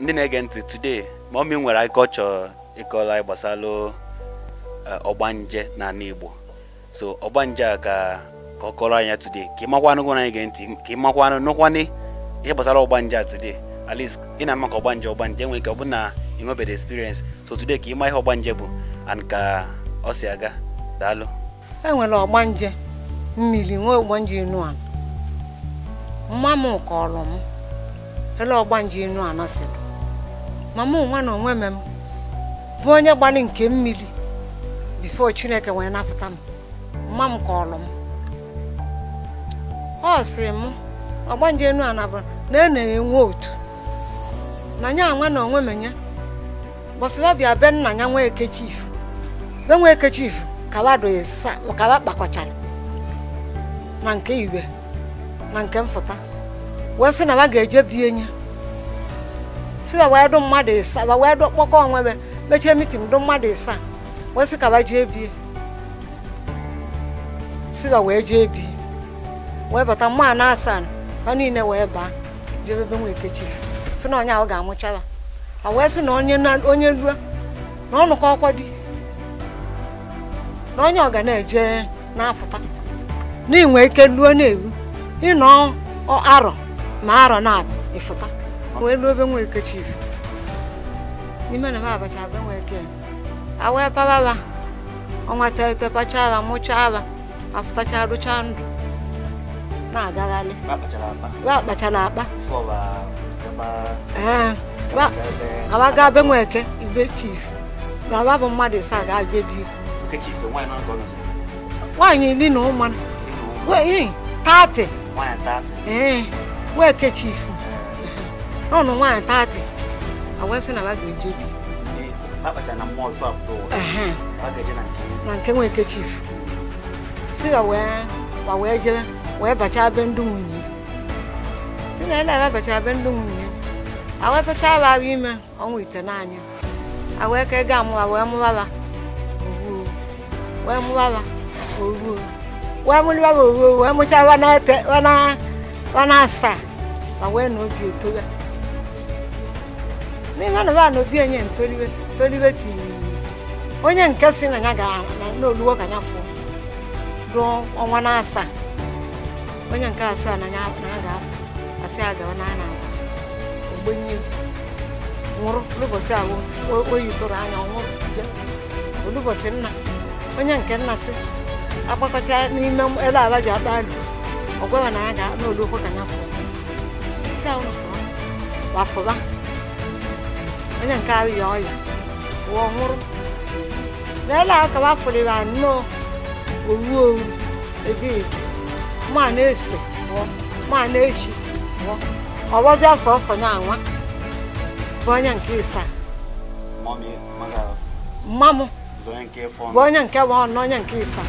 ndị na-ege ntị today mọmi nwere akụkọ chọrọ ịkọla anyị gbasara eh, ọgbanje na Igbo so ọgbanje a ka ka ọ kọrọ anya today ka ị makwanụ gụrụ anyị ge ntị ka ị makwanụ nụkwanị ihe gbasara ọgbanje a today at least ị na-ama ka ọgbanje ọgbanje nwere ike ọ bụ na ị nwebeghị experience so today ka ịma ihe ọgbanje bụ and ka ọ si aga daalụ enwere ọgbanje mmiri nwee ọgbanje inu ala mma m kọrọ m ele ọgbanje inu ala sịrị ma mụ nwa na onwe m bụ onye gbalị nke mmiri bifo chineke wee napụta m mma m kọọlụ m ọ sị m ọgbanje enu nabụ na e na-enwe otu na nya nwa na onwe m nye bọsịba bịa be nna ya nwa eke be nwa eke kawa kpakọchara na nke iwe na nke mfụta wee sị na wa ga-eje bie nye si na wee dụ mmadụ ịsa ịsaa wee dụ kpọkọ onwe mechie mitin dụ mmadụ ịsa wee sị ka ba jee bie si na wee jee bie wee bata mma na asaa ba niile wee baa jee ebe nwa ekechi si na onye ahụ ga-amụcha ya ha wee sị na onye na-onye lue na ọnụkọ ọkwa di na onye ọga na-eje na-apụta n'inwe ike lue na-eru ịnọ arọ ma arọ na-abụ ịfụta wee ruo obe nwa eke n'ime na m abacha be nwa eke awee pababa ọnwa tete aba mụchaa aba afụtacha rụchaa ndụ na-agagharị akpachara akpa kaba gaa be nwa eke ibe chief na aba bụ mmadụ ịsaa ga abịa bi nwaanyị iri na ụmụ tatị nwa eke chief n'ụlọ nwaanyị taatị agwa sị na a ga-eje bi na nke nwere chief si ya wee jere wee bachaa be ndị nwunye si na ele ababacha be ndị nwunye awee ime ọnwa ite n'anya awee ka ego amụwa wee mụbaba oruo wee mụbaba oruo wee wee wana asaa ma na obi n'ihe na bana obi enye ntoliwe toliwe tinyere onye nke si na ya na oluwo ka ya fụọ ruo ọnwa na asaa onye nke asaa na ya ga-afụ asị a gawa na a na-agba ogbenye nwụrụ n'ụbọchị ahụ oyi tụrụ anya ọnwụrụ n'ụbọchị nna onye nke nna si agbakọcha n'ime ele ala ji akpa alụ ọ gwawa na ya ga n'olokwu ka ya fụọ isi ahụ na fụọ wafụba onye nke arịa ọya wụọ nwụrụ leela akawa afọrọ ya nnọọ owu owu ebe e ibu ma na-ese pụọ ma na-echi pụọ ọwọzịa sọsọ na anwa bụ onye nke ịsa mma m bụ onye nke bụ ọnụ onye nke ịsa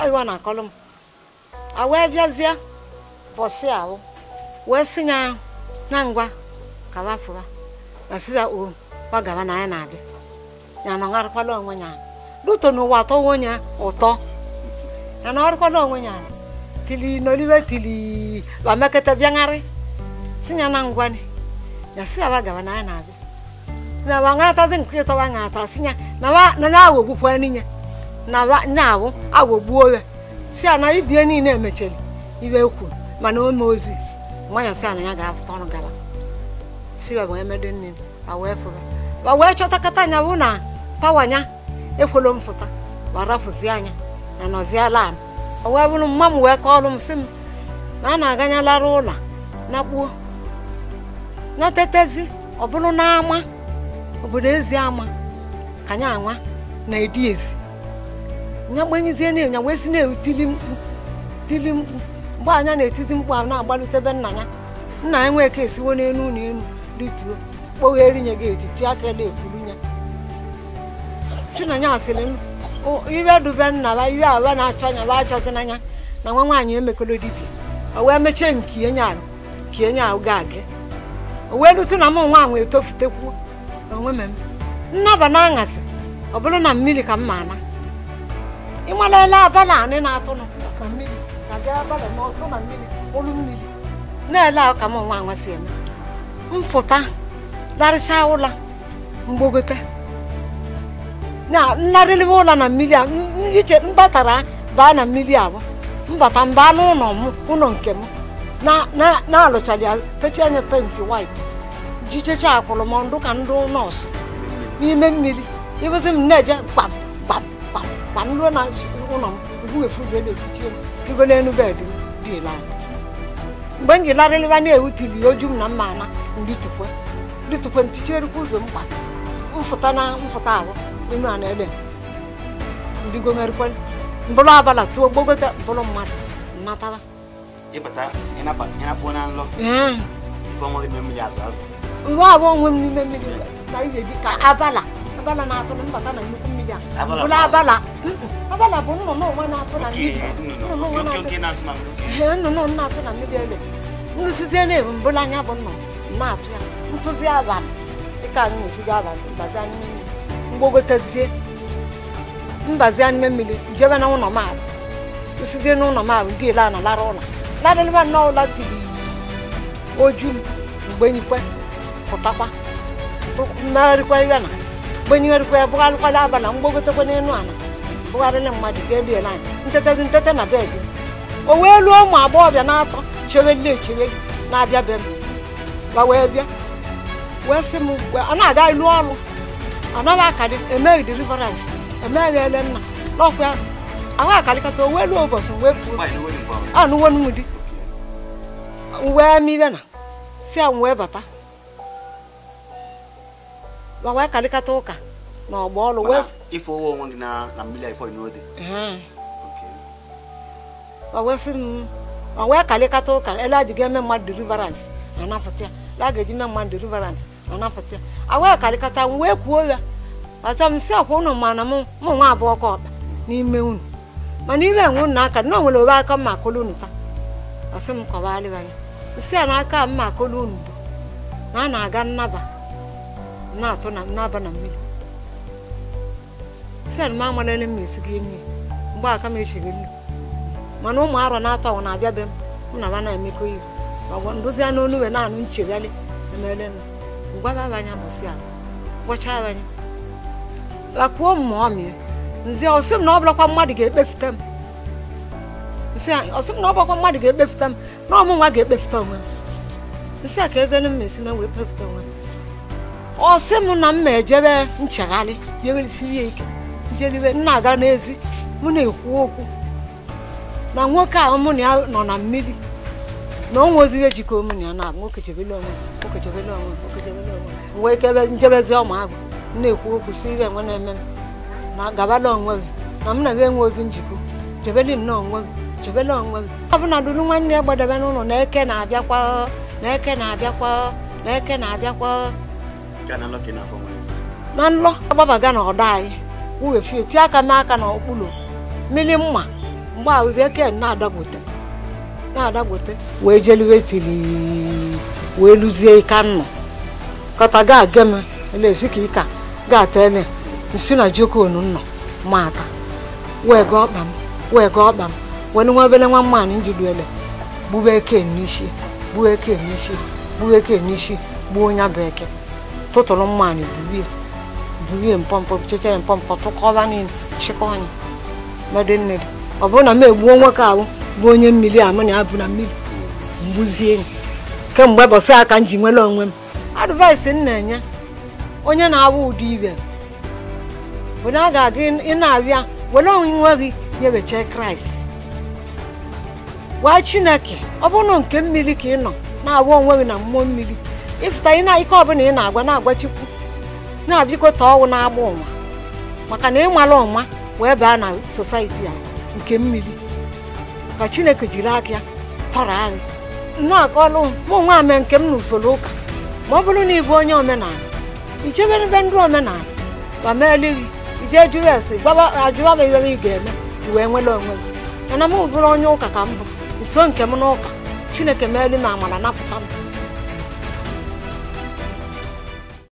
ọyịwa na akọlụ m a wee bịazie bọsị ahụ wee si ya na ngwa kawa fụwa asịza o ọ gaba na anyị na-abịa ya na ọgharịkwala onwe ya luto n'ụwa atọwa onye ya na ọrịkwala onwe ya kili n'olibe kili bamekete bịagharị si ya na ngwanị ya si aba gaba na anyị na-abịa na ba ngatazi nke ịtọba ngata si ya na ya awogbukwa n'inya na na-awụ ya si ya na ibie niile emecheli ibe kwuru mana ome ozi nwa ya si ya na ya ga-apụta ọnụ gaba si wee wee medo nne wee fụba ma wee chọtakata anya bụ na pawanya nya ekwelo m fụta ma anya na nọziala ala ọ wee bụrụ mma m wee kọọlụ m sị m na a na lara ụlọ na kpuo natetezi ọ bụrụ na n'ama obodo ezi ama ka anya anwa na edi ezi nya gbanyezie na nya wee si na-etili mkpu tili mkpu mgbe anya na-etizi mkpu ahụ na-agbalutebe nna ya nna ya nwee ka esiwo n'elu na elu rituo kpoghere nye gị etiti aka na-ekwuru ya si na nya asịrị iwe dube nna ba iwe awa na-achọ anya ba achọzi n'anya na nwa nwaanyị emekọrọ dibia o wee mechie nke enye ahụ ka enye ahụ ga agị o wee rute na mụ nwa ahụ etofutekwuo onwe m nnaba na aṅasị ọ bụrụ na mmiri ka m ma ị ịmalela abalị anị na-atụ na mmiri na-ele abalị na na olu ka m nwa nwa si eme mfụta larịcha ụla mgbogote na nlarịrịwa ụla na mmiri a iche mbatara baa na mmiri abụọ mbata mbaa n'ụlọ m ụlọ nke m na-alụchara ya pechi anya penti wait jichecha akwụrụ m ndụ ka ndụ nọọsụ n'ime mmiri ịbụzi m na-eje gbam gbam gbam gbam ruo na ụlọ m ubuefuziela etiti m rigo n'elu bedị m biela anya mgbe m ji larịlịba na ya oju m na mma ana ndị ritukwe nticherukwa ụzọ mkpa mfụta na mfụta ahụ ime a na-ele ndigomerukwe mbụrụ abala tụọ gbogote mbụrụ mmadụ natara mgbe abụ onwe m n'ime mmiri na dị ka abala abala na-atụ na mbata na nnukwu mmiri a bụla abala abala bụ nnụnụ onwe na-atụ na mmiri nnụnụ na-atụ na mmiri ele nrụsite na ebu mbụla anya bụ nnụnụ na-atụ ya ntụzi abalị dịka anyị na-esiga abalị mbazi anyị mmiri mgbogotezie mbazi anyị mmiri jebe na ụlọ maabụ rụsite na ụlọ maabụ ndị ele a na lara ụla larịlịba nnọọ ụla tiri oju mgbe nyikwe pụtakwa mmegharịkwa ibe na kpenyerekwa bụgharịkwala abalị na mgbagotekwa n'elu ala bụgharịla mmadụ ka elie na anyị nteta na n'abalị o wee luo ụmụ agbọghọbịa na-atọ chegheli echegheli na-abịa be m gba wee bịa wee sị m a na-aga ilu ọrụ anaghị akadị emeghị deliverance emeghị ele nna n'ọkwa ahụ akarịkata o wee luo ụbọchị wee kwuo m wee mibe na si a m wee bata wee karịkata ụka na ọgba ọlụ wee ife owe onwe gị na mmiri ifo n'ode wee karịkata ụka ele a ji ga-eme mmadụ deliverance anafụta ya la ga-eji mee mmadụ deliverance anafụta ya awee karịkata m wee kwuo ya ọta m si ọkwa ụnụ mana m mụ nwa abụọ ka ọkpa n'ime unu mana ime enwe unu aka na o nwere obe aka mma akụlụ unu taa ọsị m kọwalịa ya nsị a n'aka mma akụlụ unu bụ na a na-aga nnaba na-atụ na n'aba na mmiri sel m amalele m esigo enyi mgbe aka m echiri nri mana ụmụ arọ na-atọ ọ na-abịa be m m na ba na-emekọ iwu agwa ndozi anụ onu wee na-anụ nchegharị emele na ngwaba abanya mụsị a gwọcha abanya bakwuo m ma ọ mịa nzi ọsị m na ọ bụlakwa mmadụ ga-ekpefute m nsị ọsị m na ọ bụlakwa mmadụ ga-ekpefute m na ọmụ nwa ga-ekpefute onwe m nsị a ka eze m esi m wee kpefute onwe m ọ m na m ma ejebe nchegharị jeresiri ya ike njeliwe nna n'ezi mụ na-ekwu okwu na nwoke a mụ nọ na mmiri na ọ nweziri ejikọ mụ na ya na nwoke chebele onwe nwoke chebele onwe nwoke onwe njebezi ọma na-ekwu okwu si ibe enwe na-eme m na gabala onwe gị na m na gị enwe njikọ onwe gị onwe bụla nwanne ya gbadebe n'ụlọ na eke na-abịakwa na eke na-abịakwa na eke na-abịakwa na nlọ agbabaga na ọda anyị ughefie tie aka n'aka na ọkpụrụ mmiri mma mgbe ahụzi eke na-adagbote na-adagbote wee jeliwe tiri wee luzie ika nnọ kọta ga gem elezi ka ịka ga tele nsi na jokonu nnọ mata wee ga ọkpa m wee ga ọkpa m wee nwa obele nwa mmanụ ele gbuwe eke n'isi gbuwe eke n'isi gbuwe eke n'isi gbuo onye bụ eke tụtụrụ mmanụ burie burie mpọmpọ checha mpọmpọ tụkọba niile chịkọ anyị madịnne gị ọ bụrụ na m egbuo nwoke ahụ bụ onye mmiri amụ na abụ na mmiri mgbuzie kemgbe bọsị aka m ji nwere onwe m advaịsị m na-enye onye na-awụ ụdị ibe bụ na a ga-aga ị na-abịa were onwe gị nyebecha kraịst gwa chineke ọ bụrụ nke mmiri ka ị nọ na-awụ onwe gị na mmụọ mmiri ịfụta ị na ike ọbụla ị na-agwa na-agwa chukwu na-abịakọta ọnwụ na-agba ụwa maka na ịmala ụma wee baa na sosaiti a nke mmiri ka chineke jiri aka ya tọrọ anyị nnọọ ka ọlụ mụ nwa ame nke m na usoro ụka ma ọ bụrụ na ịbụ onye omenala ichebere ebe ndị omenala ma ma elighị ije jụrụ esi ajụbaba iwe ị ga-eme wee nwere onwe gị mana m bụrụ onye ụka ka m bụ nso nke m n'ụka chineke meelu m amara napụta m